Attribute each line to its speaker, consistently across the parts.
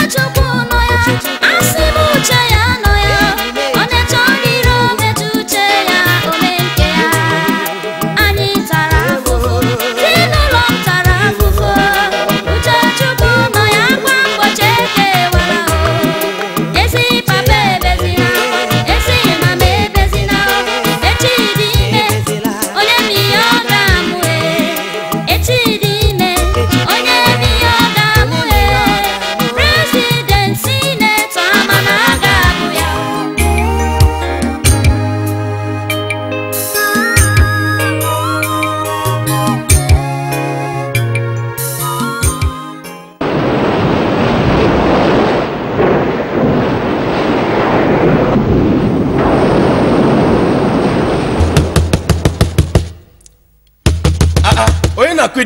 Speaker 1: Much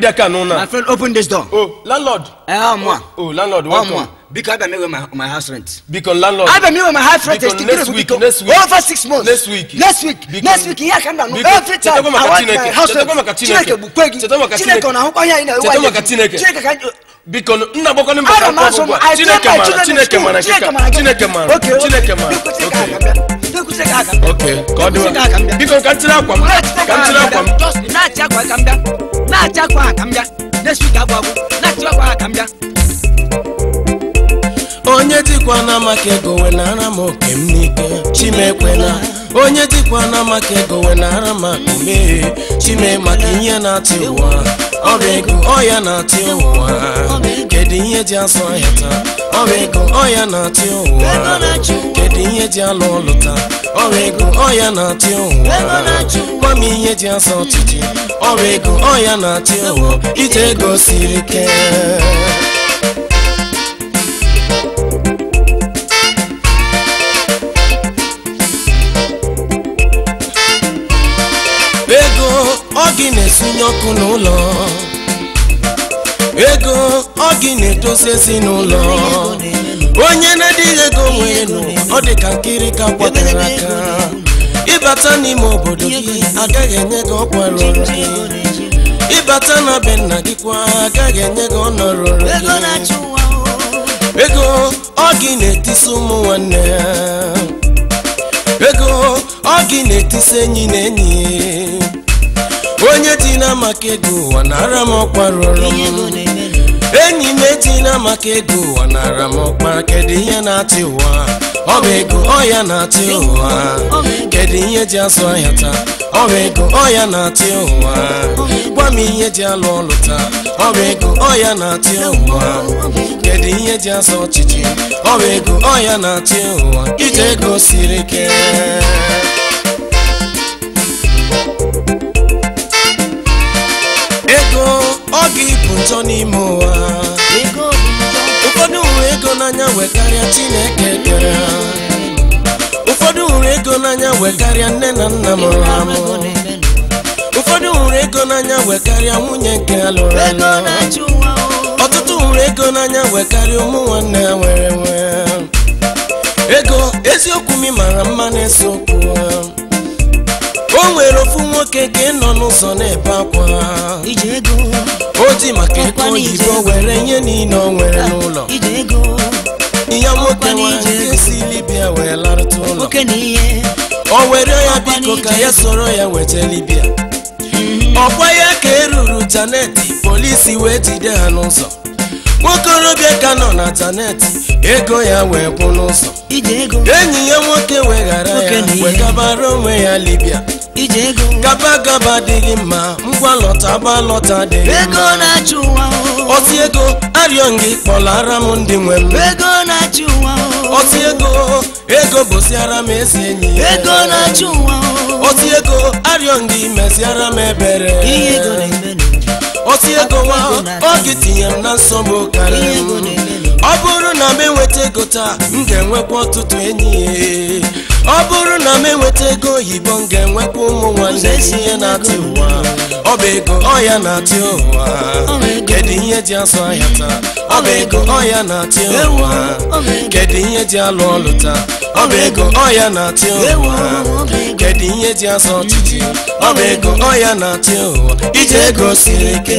Speaker 1: that can My friend, open this door. Oh, landlord. uh, oh, oh, landlord, welcome. Oh, because I don't know my, my house rent. Because landlord. I have not know my house rent. Because next week, next week. Over six months. Next week. Next week. next week, yeah, come down. Every time I want my house rent. Chineke bukwegi. Chineke unahukwa ya ina. Chineke kanyo. Because nna boko ni mbaka kwa kwa. Chineke mara, Chineke mara, Chineke mara, Chineke mara. Okay. Okay. God. Because kantira kwa. Kantira kwa. akambịa onye dịkwa na maka ego wenara m oke m n'ike Chimekwela; onye dịkwa na ego wenara m akụme chime maka ihe na atị ụwa ọrịa ego ọya na atị ụwa kedu ihe ji asụ ahịa taa ọrịa ego ọya na ụwa kedu ihe ji alụ ọlụ taa ọrịa ego ọya na atị ụwa gwa m ihe ji asa ọchịchị ọrụ ego ọya ya na-achị ụwa iji ego siri ike ego ọ gị na-esunye ọkụ n'ụlọ ego ọgị na-edozi n'ụlọ onye na-adịghị ego nwee nụ ọ dị ka nkiri ka kwatara aka ịbata n'ime obodo gị agaghị enye gị ọkwa rụrụ ịbata na be nna gị kwa agaghị enye gị gị. ego ọ gị na-etisi ụmụ nwanne ya ego ọ gị na-etisi enyi na enyi onye dị na maka ego ụwa nara m ọkwa rụrụ m enyi m etina maka ego ụwa nara m ọkpa kedu ihe na-atị ụwa ọ bụ ego ọ ya na-atị ụwa kedu ihe ji azụ ahịa taa ọ bụ ego ọ ya na-atị ụwa gwa m ihe ji alụ ọlụ taa ọ bụ ego ọ ya na-atị ụwa kedu ihe ji azụ ọchịchị ọ bụ ego ọ ya na-atị ụwa ije ego siri ike ego ọ gị bụ njọ n'ime ụwa ụfọdụ hụrụ ego n'anya nwekarịa Chineke ego n'anya karịa nne na nna m ha ụfọdụ nwere ego n'anya wee karịa nwunye nke alụrụ lụrụ ọtụtụ hụrụ ego n'anya wee karịa ụmụ nwanne ha nwere nwee ego eziokwu m mara mma na-ese okwu o nwere ofu nwoke ka ị nọ n'ụzọ na-ebe akwa o ji maka ego oyibo were nye niile o nwere n'ụlọ ihe nwoke nwere si libya wee larụta ụlọ o were ya biko ka ya sọrọ ya weta libia mm-hmm. ọkwa ya ka eruru taneti polisi wee jide ha n'ụzọ nwokorobịa ka nọ na taneti ego ya wee kwụ n'ụzọ enyi ya nwoke weghara ya wegabara onwe ya libya gaba gaba adịghị mma ngwa lọta gba lọta adịghị mma ozi ego arịọ gị kpọlara m ndị nwere. ọtị ego ego bụsiara m ezi enyi ya ego na-achụ ụwa ọtị ego arịọ ndị meziara m ebere ihe ego ọtị ego nwa oge tinye m na nsogbu karịa m ọ bụrụ na m enweta ego taa m ga-enwekwa ọtụtụ enyi ọ bụrụ na m enweta ego oyibo m ga-enwekwa ụmụ nwanne ihe na atụ ụwa ọya na-atị ụwa kedu ihe ji asọ ahịa taa ọ bụ ego ọya na-atị ụwa kedu ihe ji alụ ọlụ taa ọ bụ ego ọya na-atị ụwa kedu ihe ji asọ ọchịchị ọ bụ ego ọya na-atị ụwa iji ego siri ike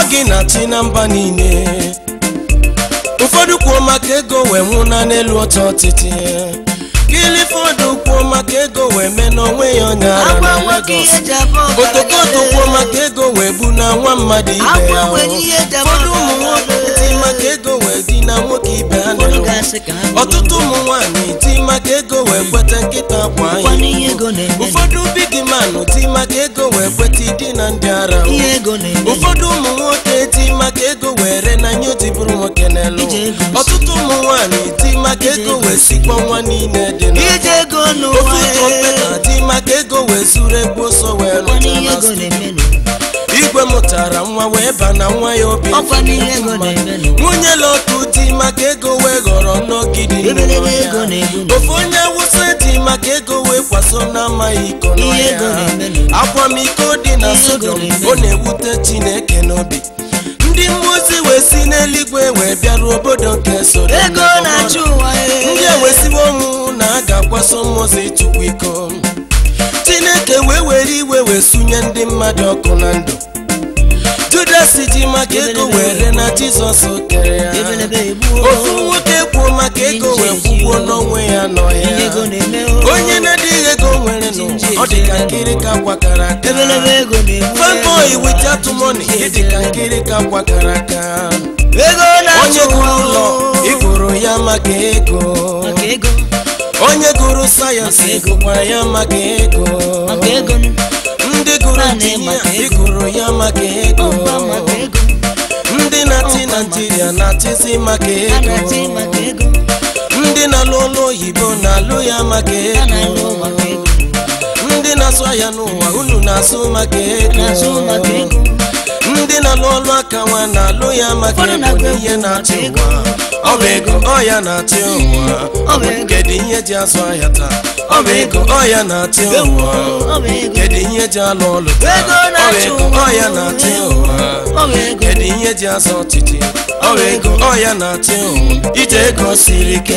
Speaker 1: ọ gị na na mba niile ụfọdụ kwuo maka ego wee nwụna n'elu ọcha ọtịtị fọdụ kwuo maka ego wee mee n'onwe ya ọnya ara na otokoto kwuo maka ego wee bu na nwa mmadụ ibe ya ụfọdụ ụmụ nwoke maka ego na nwoke ibe ha na-enwe ọtụtụ ụmụ nwanyị. ti maka ego wee kweta nkịta akwa anyị ụfọdụ big man ti maka ego wee kweta ịdị na ndị ara ụfọdụ ụmụ nwoke ti maka ego wee ree. na nye otibụrụ nwoke n'elu ọtụtụ ụmụ nwanyị. ti maka ego wee sikpọ nwa niile dị n'ofe ụtọ mkpeta ti maka ego wee zuru ego sọ wee rụcha na mụtara nwa wee ba na nwa ya obi nwunye lotu di maka ego wee ghọrọ n'ogidi ofe onye wụsa di maka ego wee kwaso na amaghị iko akwamiko dị na sodom ọ na-ewute chineke n'obi ndị mmụọ ozi wee si n'eluigwe wee bịaruo obodo nke soro ndị ewesiwo ọnwụ na a ga-akwaso mmụọ ozi chukwu iko chineke wee were iwe wee sunye ndị mmadụ ọkụ na ndụ Judas ji maka ego were na Jizọs kere ya ofu nwoke kwuo maka ego wee kwụgwuo n'onwe ya nọ ya onye na-adịghị ego nwere nụ ọ dị ka nkiri ka kwakara aka fanboy with atụmọni dị ka nkiri ka kwakara aka onye gụrụ ụlọ ịgụrụ ya maka ego onye gụrụ sayensị gụkwara ya maka ego ịgụrụ ya maka ego ndị na-achị naijiria na-achịzi maka ego ndị na-alụ ụlọ oyibo na-alụ ya maka ego ndị na-asụ ahịa n'ụwa unu na-asụ maka ego ndị na-alụ ọlụ aka nwa na-alụ ya maka ihe na-achị ụwa ọ bụ ego ọ ya na-achị ụwa ọ bụ kedu ihe ji azụ ahịa taa ọ ọya na-atị ụwa kedu ihe ji alụ ọlụ ọ ọya na-atị ụwa kedu ihe ji azụ ọchịchị ọ ọya na-atị ụwa ije ego siri ike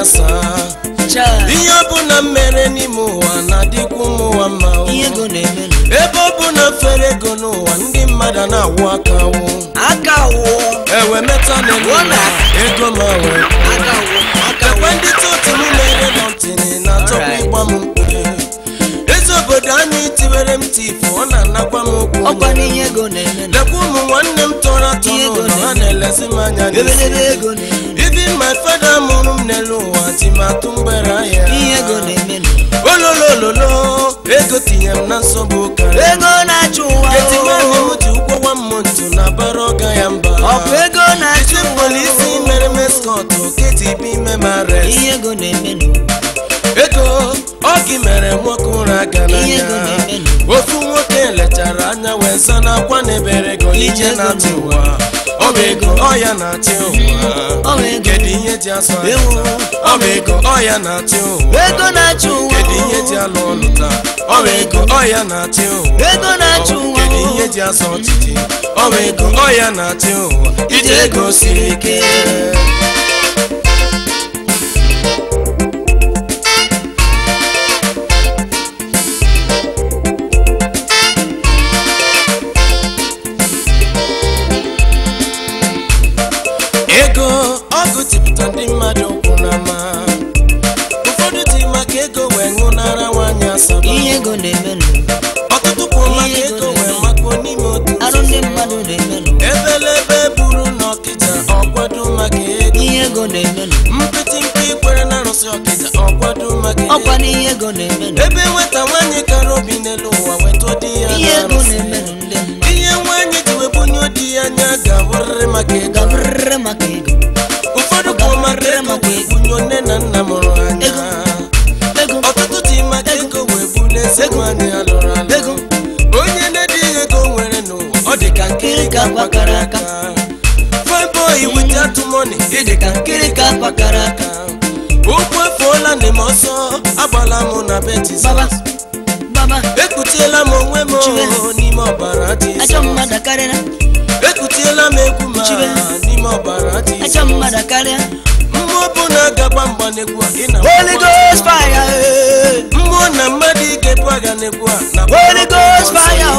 Speaker 1: ya saa ihe ọbụla mere n'ime ụwa na-adịkwu ụmụnwa mma ebe ọbụla fere ego n'ụwa ndị mmadụ na-awụ aka aka ewe meta ego ma wee ekwe ndị otu m na-ere nọntịnị na-atọkwa ịgba m mkpu ezi obodo anyị tiwere m tifụ ọ na-anakwa m okwu lekwa ụmụ nwanne m tọrọ atọ n'ụlọ ha na-elezi m anya n'isi ibi my fada mụ n'elu ụwa timatụ mgbere ahịa ihe ego na-eme ego tinye m na nsogbu ụka ego na-achụ ụwa etimahị m ji ụkwụ nwa na ọga ya mba ọ ego na-achụ ụwa isi mere meskọt ime ihe ego na-eme ego ọ gị mere nwoke ụra aga n'anya ofu nwoke lechara anya wee sa na ebere ego ije na ọbego ọya na-achị ụwa kedu ihe ji asụ ọbego ọya na-achị ụwa ego na-achị ụwa kedu ihe ji alụ ọnụ taa ọbego ọya na-achị ụwa ego na-achị ụwa kedu ihe ji asọ ọchịchị ọbego ọya na-achị ụwa ije ego siri ike ihe ego na-emelụ ọtụtụ kwuru maka ego nwere makwa n'ime otu arụ ndị mmadụ na-emelụ ebelebe buru na ọkịja ọkwado maka ego ihe ego na-emelụ mpịtị mpe kwere na arụsị ọkịta, ọkwado maka ego ọkwa n'ihe ego na-emelụ ebe nweta nwaanyị kara obi n'elu ụwa weta di ya ihe ego na-emelụ ndị ihe nwaanyị ji webunye di ya anya ga-abụrịrị maka ego na-abe ekutiela m onwe m n'ime ọbara ekutiela m egwu ma n'ime ọbara Jizọs mmụọ bụ na agaba mgba n'egwu a mmụọ na mmadụ n'egwu a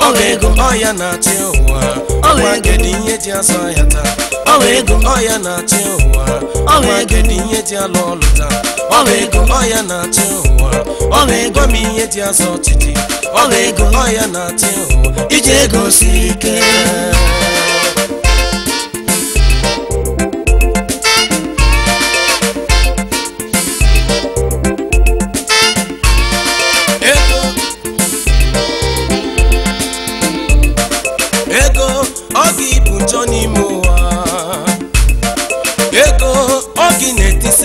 Speaker 1: ọ ga-ego ọya na-achị ụwa gị ihe ji asọ ọwa ego ọya na-achị ụwa ọwa ego dị ihe dị alụ ọlụ taa ọwa ego ọya na-achị ụwa ọwa ego ma ihe dị azụ ọchịchị ọwa ego ọya na-achị ụwa iji ego si ike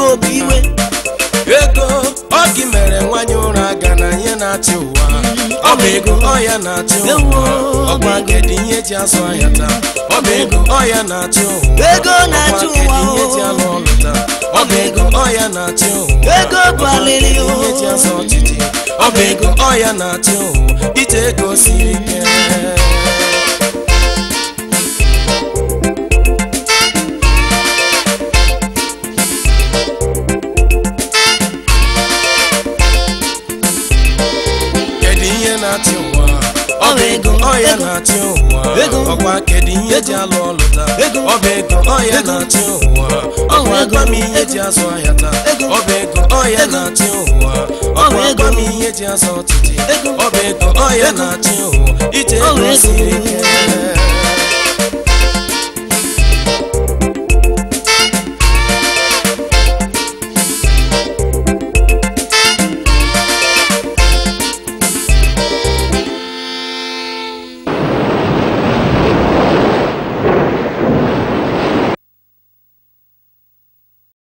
Speaker 1: ego bụ iwe ego ọ gị mere nwanyị ụra ga na ihe na-achị ụwa ọ bụ ego ọ ya na-achị ụwa ọgbagedị ihe ji azụ ahịa taa ọ bụ ego ọ ya na-achị ụwa ọgbagedị ihe ji alụ ọlụ taa ọ bụ ego ọ ya na-achị ụwa ọgbagedị ihe ji azụ ọchịchị ọ bụ ego ọ ya na-achị ụwa ije ego siri ike ọya na-atị ụwa ọkwa kedu ihe ji alụ ọlụ taa ọba ego ọya na-atị ụwa ọnwa gwa m ihe ji azụ ahịa taa ọba ego ọya na siri